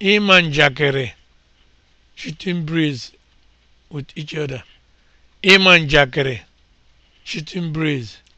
Ịma njakịrị (shooting breeze with each other), Ịma njakịrị (shooting breeze)